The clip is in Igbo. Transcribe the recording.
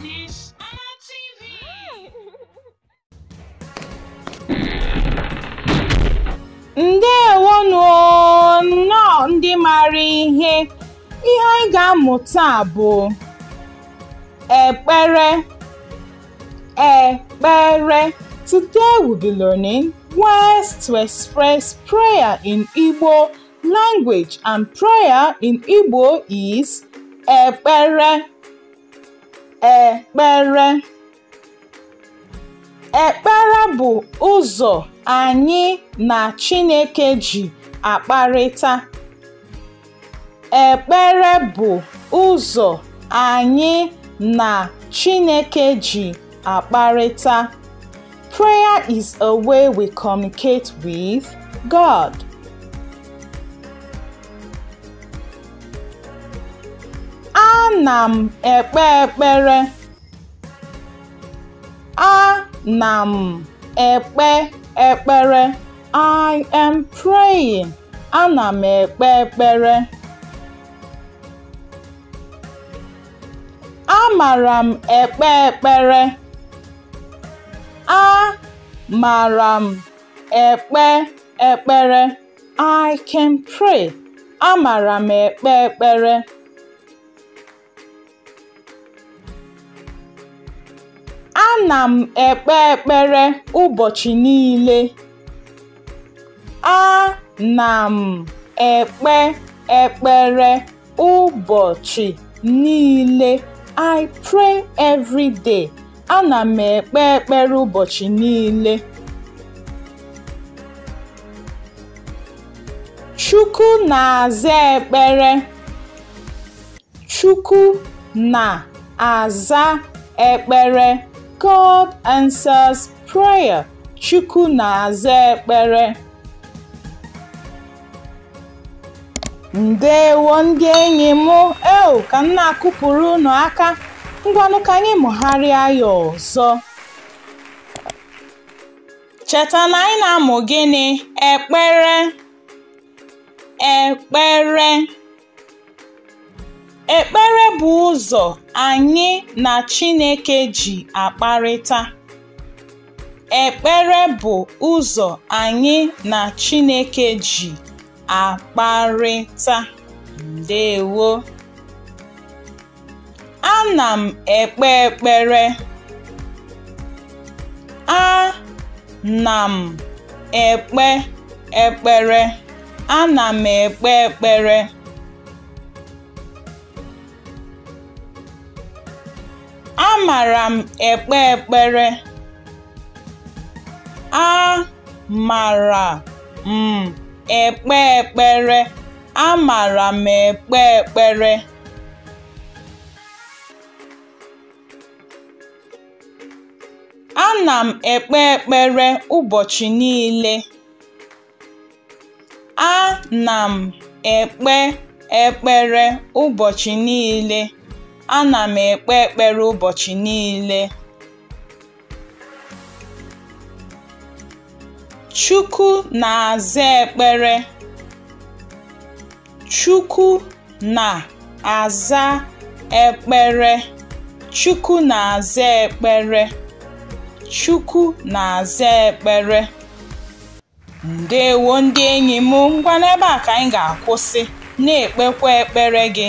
Miss ndewonu nnọọ ndị maara ihe ihe anyị ga-amụ taa bụ ekpere ekpere today we be learning ways to express prayer in Igbo language and prayer in Igbo is ekpere ekpere Ekpere bụ ụzọ anyị na Chineke ji akparịta. Ekpere bụ ụzọ anyị na Chineke ji akparịta. Prayer is a way we communicate with God. Ana m ekpe ekpere. Ana m ekpe ekpere. I am praying. Ana m ekpe ekpere. Amara m ekpe ekpere. Amara m ekpe ekpere. I can pray. Amara m ekpe ekpere. Ana m ekpe ekpere ụbọchị niile. Ana m ekpe ekpere ụbọchị niile. I pray every day. Ana m ekpe ekpere ụbọchị niile. Chukwu na-aza ekpere. Chukwu na-aza ekpere. God answers prayer. Chukwu na-aza ekpere. Ndewo ndị enyi m eo ka m na-akụpụrụ ụnụ aka ngwanụ ka anyị mụgharịa ya ọzọ cheta na anyị na-amụ gịnị ekpere ekpere Ekpere bụ ụzọ anyị na Chineke ji akparịta. Ekpere bụ ụzọ anyị na Chineke ji akparịta. Ndewo. na m ekpe ekpere. na m ekpe ekpere. na m ekpe ekpere. Amara m ekpe ekpere, amara m ekpe ekpere, amara m ekpe ekpere. na m ekpe ekpere ụbọchị niile. Ana m ekpe ekpere ụbọchị niile. Ana m ekpe ekpere ụbọchị niile. Chukwu na-aza ekpere. Chukwu na-aza ekpere. Chukwu na-aza ekpere. Chukwu na-aza ekpere. Ndewo ndị enyi m, ngwa n'ebe a ka anyị ga-akwụsị, na-ekpekwa ekpere gị.